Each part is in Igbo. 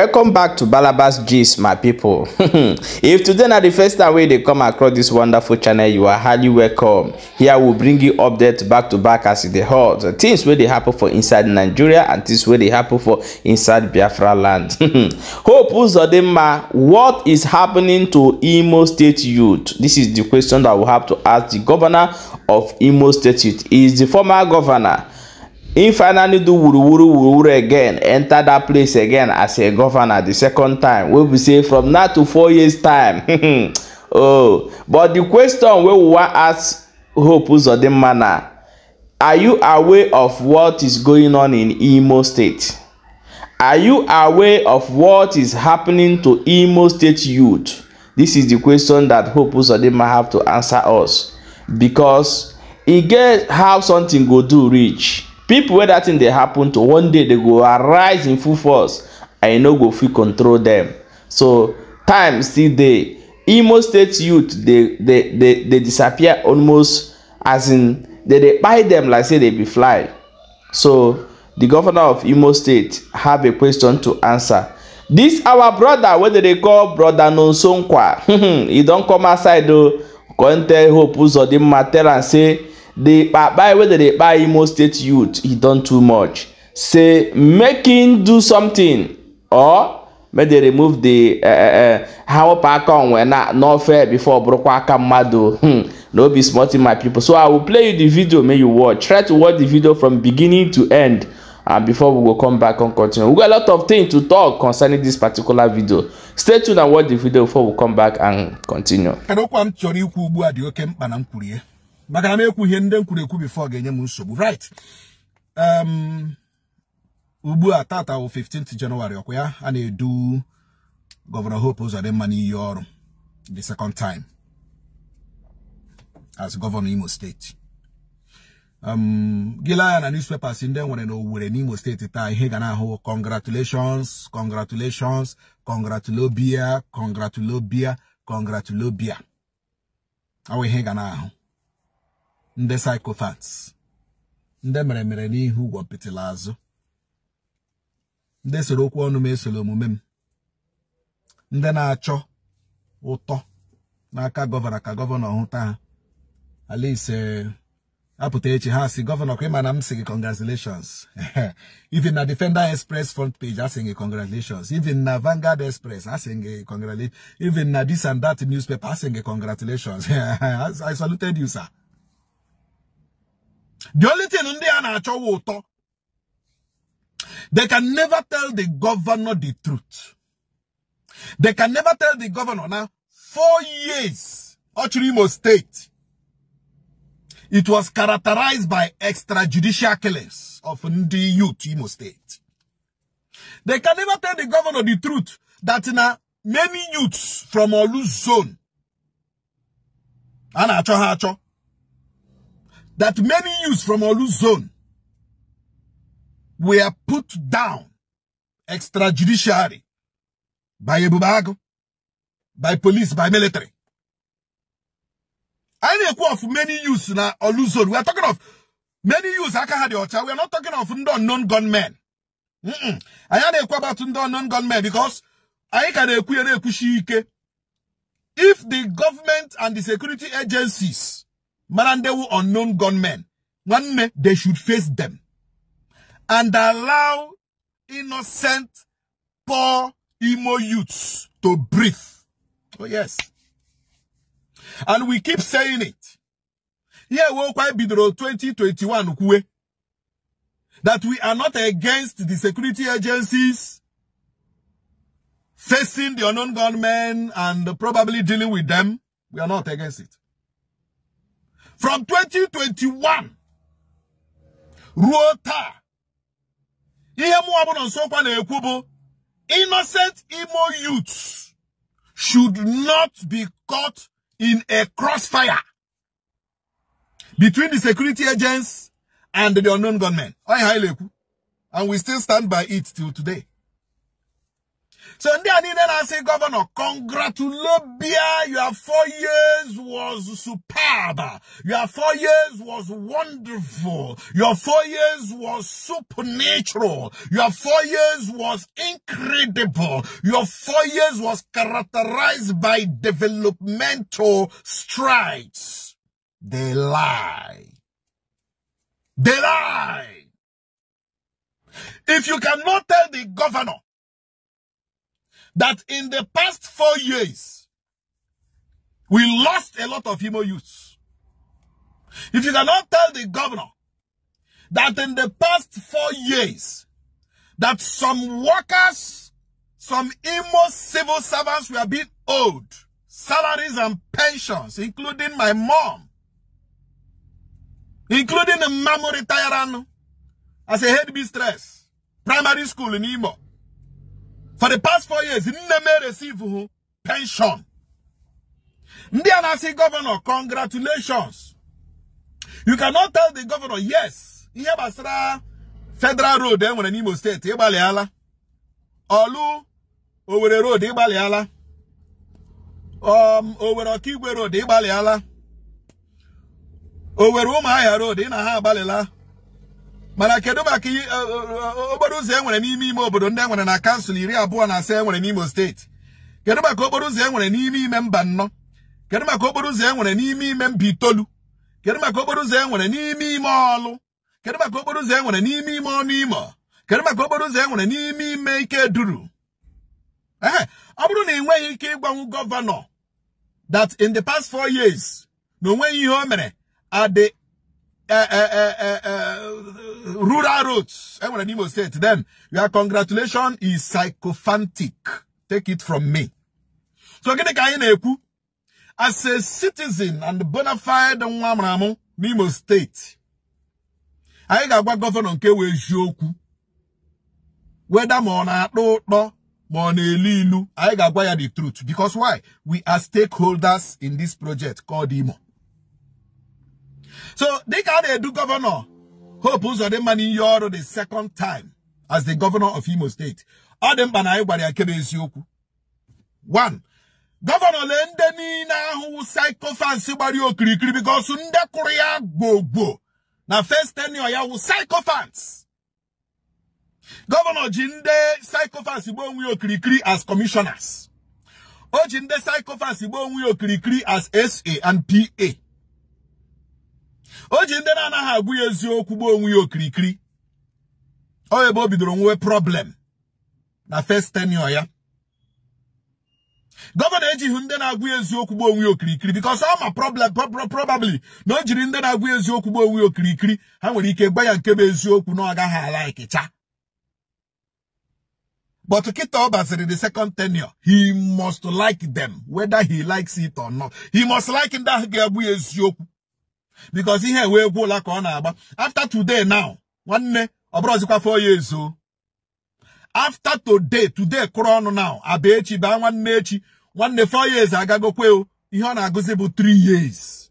welcome back to balabas gist my people. if today na the first time wey dey come across this wonderful channel you are highly welcome here we bring you updates back to back as e dey hot things wey dey happen for inside nigeria and things wey dey happen for inside biafra land hope uzodinma what is happening to imo state youth this is the question that we have to ask the governor of imo state youth he is the former governor Him finally do wuruwuru wuruwuru again enter that place again as a governor the second time wey be say from now to four years time oh but the question wey we wan ask hope uzodinma manner. are you aware of what is going on in imo state are you aware of what is happening to imo state youth this is the question that hope uzodinma have to answer us because he get how something go do reach People, wey dat thing dey happen to one day they go arise in full force and you e no go fit control them. so time still dey imo state youth dey dey dey dey disappear almost as in dey dey kpai dem like say dey be fly so the governor of imo state have a question to answer this our brother wey dem dey call brother nonsonkwa he don come outside oh, o come tell hope uzodinma tell am say the kpai wey dem dey kpai imo state youth He don too much say make him do something or make dem remove the ha eh, eh, eh, wepụ aka onwe na fair before bụrụkwa aka mmadụ hmm no be small thing my people so i will play you the video make you watch try to watch the video from beginning to end and uh, before we go come back and continue we got a lot of things to talk concerning this particular video stay tuned and watch the video before we come back and continue. Kedụ kwa chọrọ ikwu ugbu a dị oke mkpa na m kwurie maka na m ekwu ihe ndị m ekwu bifo ga-enye m nsogbu right um, ugbu a tata wụ 15th January ọkwa ya a na-edu Gọvanọ Hope Uzodimma n'iyi ọrụ the second time as Gọvanọ Imo steeti um, gịla ya na newspapers ndị e nwere na Owerri n'Imo steeti taa ihe ga na-ahụ congratulations congratulations congratulobia congratulobia congratulobia ọ ihe ga na-ahụ ndị psychopaths ndị mere mere n'ihu ụgwọ pịtịla azụ ndị soro okwu ọnụ m esoro omume m ndị na-achọ ụtọ n'aka gọvanọ ka gọvanọ hụta ha alaise apụta echi ha si gọvanọ ka ịma na m si gị congratulations even na defender express front page asị gị congratulations even na Vanguard express asị gị congratulations even na this and that newspaper asị gị congratulations i saluted you sir the only thing ndị a na they can never tell the governor the truth. They can never tell the governor now four years Ochiri State. It was characterized by extrajudicial killings of the youth Imo State. They can never tell the governor the truth that now many youths from Olu zone. Ana acho that many youths from Olu zone were put down extrajudicially by Ebubago, by police, by military. I know of many youths in Olu zone. We are talking of many youths aka had your We are not talking of unknown gunmen. Mm -mm. I know about unknown gunmen because I can equate If the government and the security agencies Marandewu unknown gunmen, one they should face them and allow innocent, poor emo youths to breathe. Oh, yes. And we keep saying it. Yeah, we'll quite be 2021 that we are not against the security agencies facing the unknown gunmen and probably dealing with them. We are not against it. From 2021 Rota, I ihe mụ ọbụla nsokwa na innocent emo youths should not be caught in a crossfire between the security agents and the unknown gunmen. And we still stand by it till today. So ndị I niile I say, Governor, congratulate your four years was superb your four years was wonderful your four years was supernatural your four years was incredible your four years was characterized by developmental strides. They lie. They lie. If you cannot tell the governor that in the past four years, we lost a lot of Imo youths. If you cannot tell the governor that in the past four years, that some workers, some Imo civil servants were being owed salaries and pensions, including my mom, including the mamu retiran as a head mistress, primary school in Imo. for the past four years nne m receive pension ndị a na-asị gọvanọ congratulations you cannot tell the governor yes ihe gbasara federal road e nwere n'Imo steeti ịgbalịala olu Owerri road ịgbalịala um Owerri Okigwe road ịgbalịala Owerri Ụmụahịa road ị na ha agbalịla mana kedu maka eh, eh, eh, okporo ụzọ e nwere n'ime ime obodo ndị enwere na kansụl iri abụọ na asaa enwere n'Imo steeti kedu maka okporo ụzọ e nwere n'ime ime mba nnọ kedu maka okporo ụzọ e nwere n'ime ime mba itoolu kedu maka okporo ụzọ e nwere n'ime ime ọlụ kedu maka okporo ụzọ enwere n'ime ime ọnụ imo kedu maka okporo ụzọ enwere n'ime ime ike duru ee ọ bụrụ na ị nweghị ike ịgbanwe gọvanọ that in the past four years na onweghị ihe o mere at the uh, uh, uh, rural eh, to Everyone in State, then your congratulation is sycophantic. Take it from me. So gini the anyị na-ekwu as a citizen and bona fide nwa amụrụ n'Imo State, I ga ga-agwa gọvanọ nke wee jụọ okwu weda ma ọ na-atọ ya the truth because why we are stakeholders in this project called Imo so they got a do governor. Hope Uzodinma Niyoro the second time as the governor of Imo State. All them banai ayigbara akebe eziokwu. One, governor le who niile ahụ psychophants gbara okirikiri because ndị kwụrụ ya gbogbo na first tenure ya wụ psychophants. Governor Jinde ndị psychophants gba onwe ya okirikiri as commissioners. O ji ndị psychophants gba onwe ya as SA and PA. o ji ndị na-anaghị agwụ ya eziokwu gbuo onwe ya okirikiri ọ ebe o bidoro nwee problem na first tenure ya gọvanọ ejighị ndị na-agwụ ya eziokwu gbuo onwe ya okirikiri because ọ ma problem probably na o jiri ndị na-agwụ ya eziokwu gbuo onwe ya okirikiri ha nwere ike gba ya nke bụ eziokwu na ọ gaghị ala ikicha But ọ baziri the second tenio he must like them, whether he likes it or not. He must like ya eziokwu. because ihe wee gwụla ka ọ na-agba after today now nwanne ọ bụrụzikwa four years o after today today kụrụ ọnụ naụ abịa echi baa nwanne echi nwanne four years agagokwe o ihe ọ na-agụzi bụ three years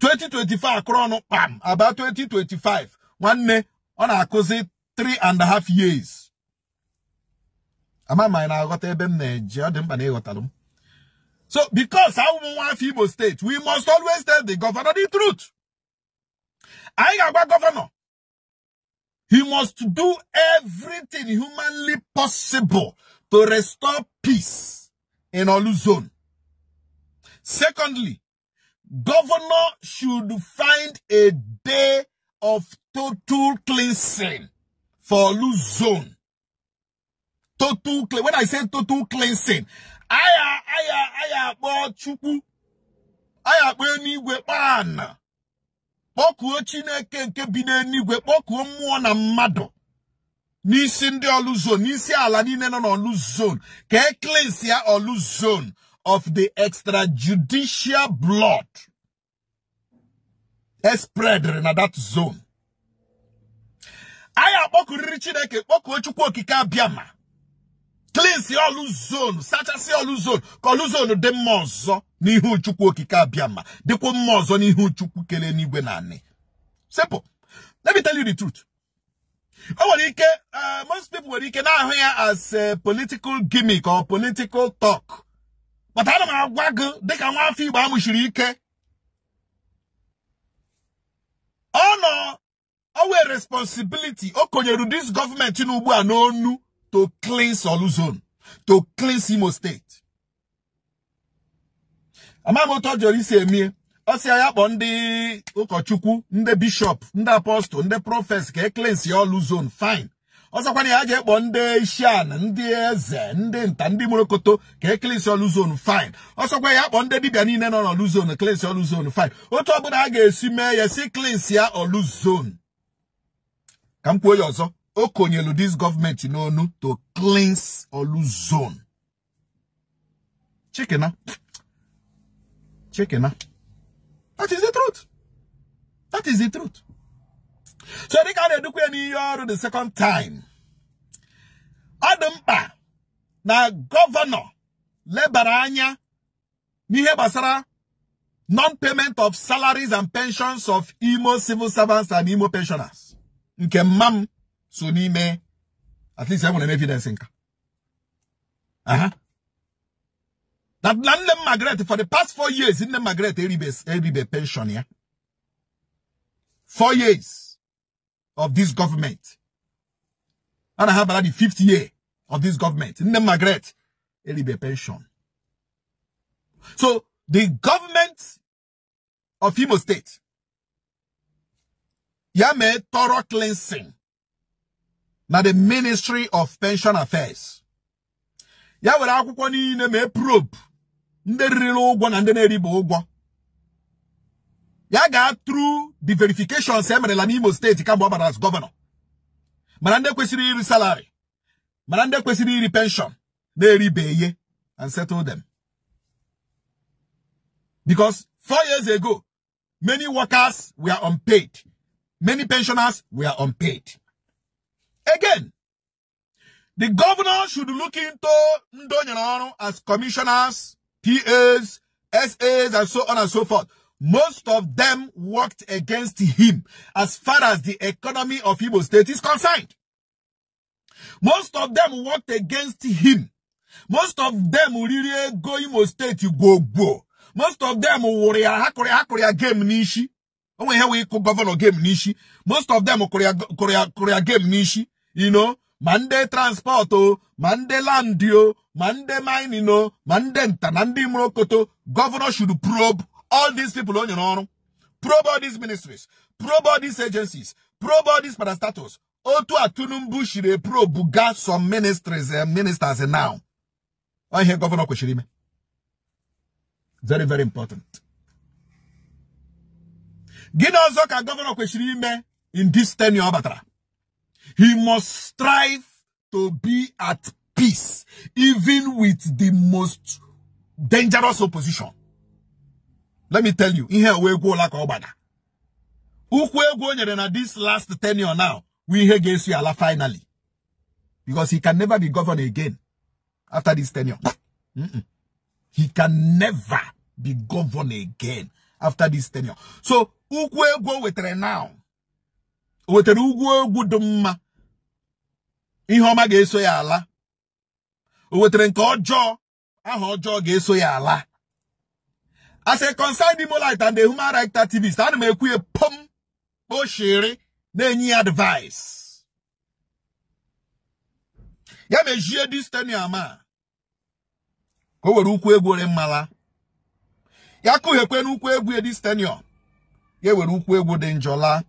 2025 akụrụ ọnụ kpam aba 2025 nwanne ọ na-akụzi three and a half years ama ma anyị na-aghọta ebe m na-eje ọ dị mkpa na ịghọtalụ m So because our want Igbo state, we must always tell the governor the truth. I am a governor. He must do everything humanly possible to restore peace in Olu zone. Secondly, governor should find a day of total cleansing for Olu zone. Total, when I say total cleansing, I aya akpọ chukwu ya akpọ eluigwe kpaana kpọkuo chineke nke bi n'eluigwe kpọkuo mmụọ na mmadụ n'isi ndị ọlụ zon n'isi ala niile nọ n'ọlụ zon ka eklesia ọlụzon of the extrajudicial blood espreadere na that zone anyị akpọkuriri chineke kpọkuo chukwu okike abịama klinsi olu zonu sachasị ọlụ ka oluzonu dị mma ọzọ n'ihu uchukwu okike abịa mma dịkwa mma ọzọ n'ihu chukwu kelee n'igwe na anị sepụ: let me tell you the truth o nwere ike eh, most people nwere ike na-ahụ ya as political gimmick or political talk mana ana m agwa gị dịka nwaafọ igbo amụchiri ike ọ nọ owe responsibility o konyere dis gọọmenti n'ugbu a n'onu to cleanse Olu Zone, to cleanse Imo State. Amaghị otu ọ jọrọ isi emie ọ sị ya kpọọ ndị ụkọchukwu ndị bishọp ndị apọstụl ndị prọfes ka e cleanse Zone fine ọzọkwana ya ga ekpọ ndị ishian ndị eze ndị nta ndị mụrụkoto ka ekilisi Olu Zone fine ọsọkwa ya akpọ ndị dibia niile nọ n'Olu Zone kilisi Olu Zone fine otu ọbụla a ga-esi mee ya si klins ya Olu Zone ka m kwuo ya ọzọ o konyelu this government you know to cleanse Olu zone it chikena that is the truth that is the truth so they can edukwe n'ihe ọrụ the second time Adamba, na governor Lebaranya, anya non-payment of salaries and pensions of Imo civil servants and Imo pensioners nke mma so n'ime at least enwere an evidence huh. That land them Margaret for the past four years in the Margaret eribe pension ya four years of this government and I have the fifth year of this government in the Margaret eribe pension so the government of Imo State Yame thorough cleansing na the Ministry of Pension Affairs. Ya were akwụkwọ niile me probe ndị riri ụgwọ na ndị na-eribe ụgwọ. Ya ga through the verification e merela n'Imo State kamgbe ọ bara as governor. Mara ndị kwesịrị iri salary. Mara ndị kwesịrị iri pension na-eribe ihe and settle them. Because four years ago, many workers were unpaid. Many pensioners were unpaid. Again, the governor should look into Ndonyanoro as commissioners, PAs, SAs, and so on and so forth. Most of them worked against him as far as the economy of Igbo state is concerned. Most of them worked against him. Most of them really go Imo state go go. Most of them worry hakuri hakuri game nishi. Onwe he we governor game nishi. Most of them korea korea korea game nishi you know, mande transporto, transport landio, oh, mande ndị land o ma ndị mining governor should probe all these people on your own. probe all these ministries probe all these agencies probe all these parastatus otu a atunumbushire probe Got some ministries and eh, ministers eh, now I hear governor kwesịrị very very important gịnị ka gọvanọ in this tenure ọ he must strive to be at peace, even with the most dangerous opposition. Let me tell you, in here we go like Obada. Ukwego Nyerena, this last tenure now, we here you. Allah, finally. Because he can never be governed again after this tenure. Mm -mm. He can never be governed again after this tenure. So, who will with wetere now, wetara ugwu egwu dị mma ihe ọma ga-eso ya ala o wetara nke ọjọọ aha ọjọọ ga-eso ya ala as a concerned Imolite and the human rights activist ana m ekwu ya pom na-enye ya advice ya mejie disteniam a ka o were ukwu egwu ore mmala ya kụghekwe n'ukwu egwu edistenium ya were ukwu egwu dị njọla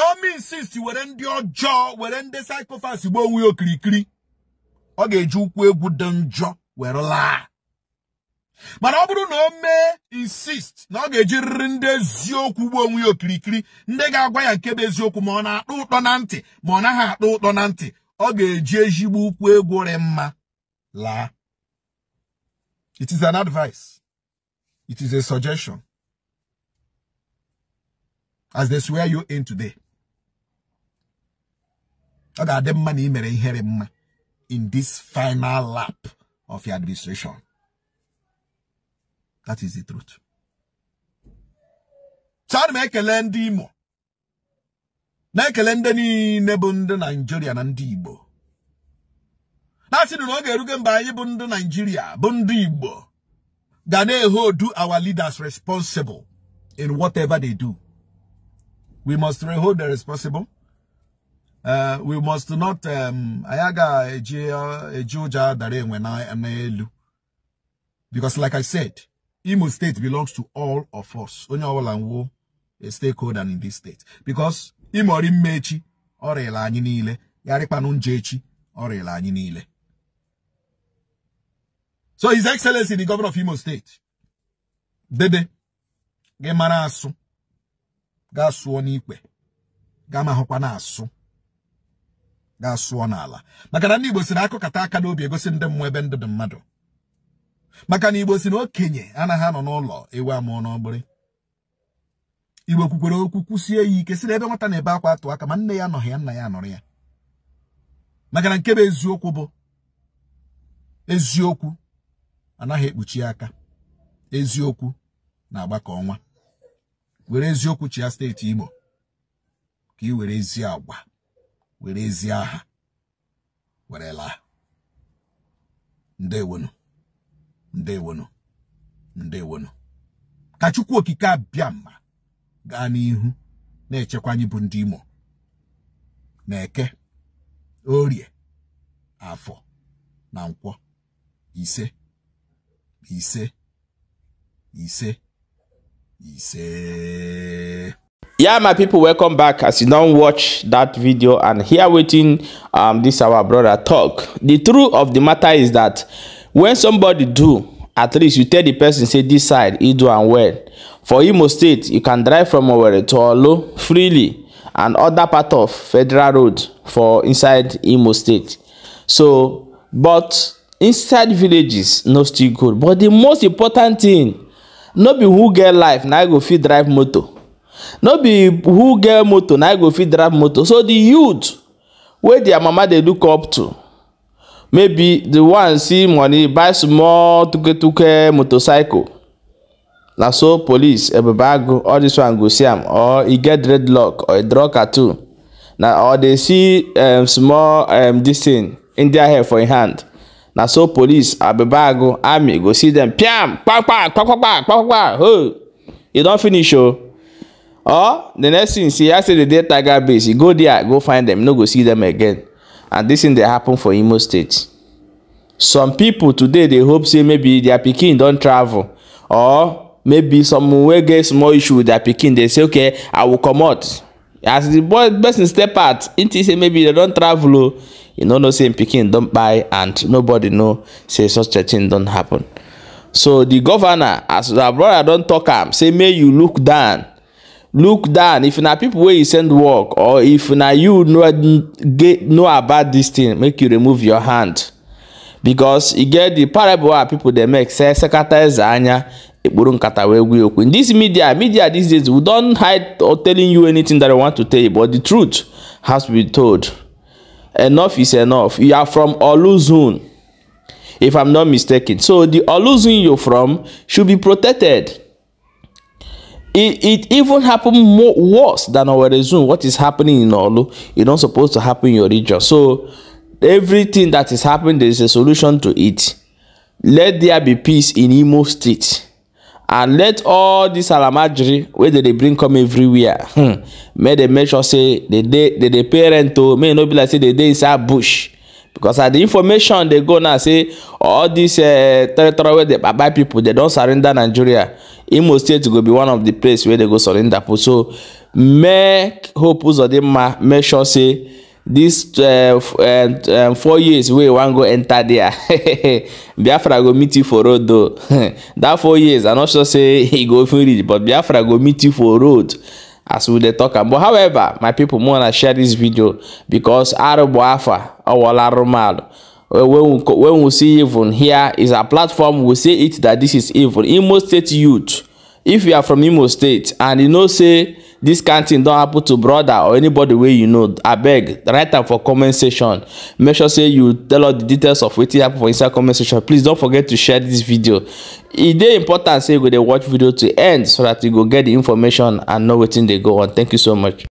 ọmi insist were ndị ọjọọ were ndị saịkofas gbuo onwe ya okirikiri ọ ga-eji ụkwụ egwu dị njọ were laa mana ọ bụrụ na o mee insist na ọ ga eji riri ndị eziokwu gbuo onwe ya okirikiri ndị ga-agwa ya nke bụ eziokwu ma ọ na akpọ ụtọ na ntị ma ọ naghị akpọ ụtọ na ntị ọ ga-eji ezigbo ụkwụ egwu rị mma laa it is an advice it is a suggestion as they swear you in today ọ money may na ị in this final lap of your administration that is the truth so ana m ekele ndị Imo na-ekele ndị niile bụ ndị Naịjirịa na ndị Igbo na-asị na ọ ga-erugo mgbe anyị bụ ndị Naịjirịa hold our leaders responsible in whatever they do we must hold them responsible Uh, we must not um, anyị agaghị eji uh, ụjọ dara enwe n'elu because like I said Imo State belongs to all of us onye ọbụla nwụọ a stakeholder in this state because ịmọrị mma echi anyị niile yarịkpanụ nje echi anyị niile so his excellency the governor of Imo State dede gị mara asụ ga sụọ n'ikpe gaa mahụkwa na asụ ga-asụọ n'ala maka na ndị Igbo si na akụkata aka n'obi egosi ndị mmụọ ebe ndụ dị mmadụ maka na Igbo si na okenye anaghị anọ n'ụlọ ewu amụọ n'ọgbụrị Igbo kwukwere okwu kwụsie ya ike si na ebe nwata na-ebe akwa atụ aka ma nne ya anọghị ya nna ya anọrị ya maka na nke bụ eziokwu bụ eziokwu anaghị ekpuchi aka eziokwu na-agba ka ọnwa were eziokwu chịa steeti Imo ka ị were ezi agwa were ezi aha were laa ndewonu ndewonu ndewonu ka chukwu okike abịa mma gaa n'ihu na-echekwa anyị bụ ndị imo na-eke orie afọ na nkwọ ise ise ise ise yeah my people welcome back as you don't watch that video and here waiting um this our brother talk the truth of the matter is that when somebody do at least you tell the person say this side he do and well for imo state you can drive from over to olo freely and other part of federal road for inside imo state so but inside villages no still good but the most important thing no be who get life na go fit drive motor no be who get motor na go fit drive motor so the youth wey their mama dey look up to maybe the one see money buy small tuketuke motorcycle na so police ebebago all this one go see am or e get dreadlock or e draw cartoon na or dey see um, small um, this thing india hair for im e hand na so police abebago army go see them. piam kpakpa kpakpa kpakpa kpakpa ho e don finish o. Oh or the next thing see, i say the dey tiger base you go there go find them you no go see them again and this thing dey happen for imo state some people today dey hope say maybe their pikin don travel or maybe some wey get small issue with their pikin dey say okay i will comot as the boy person step out him think say maybe they don travel o you no know say him pikin don kpai and nobody know say such a thing don happen so the governor as our brother don talk am say may you look down look down if na people wey you send work or if na you know get know about this thing make you remove your hand because e get the parable wey people dey make say sekata eze anya ekporo nkata wee gwe okwu in this media media these days we don hide or telling you anything that we want to tell you but the truth has to be told enough is enough you are from oluzun if i'm not mistaken so the oluzun you're from should be protected it, it even happened more worse than our resume. What is happening in Olu? It's not supposed to happen in your region. So everything that is happening, there is a solution to it. Let there be peace in Imo State. And let all this alamajiri where they, bring come everywhere. Hmm. May they make sure say the day the, the parent to oh. may not be like say the day inside bush because at the information dey go now say all these uh, territory wey dey bye people dey don surrender nigeria imo state go be one of the place wey dey go surrender for so make hope uzodinma make sure say this uh, uh, um, four years wey e wan go enter there biafra go meet you for road though that four years i no sure say e go even reach but biafra go meet you for road as we dey talk am but however my people more to share this video because arubu afa owola rumalu eh, when we, when we see even here is a platform we say it that this is evil. imo state youth if you are from imo state and you know say This kind thing don happen to brother or anybody wey you know abeg write am for comment section make sure say you tell us the details of wetin happen for inside comment section please don't forget to share this video e dey important say you go dey watch video to end so that you go get the information and know wetin dey go on thank you so much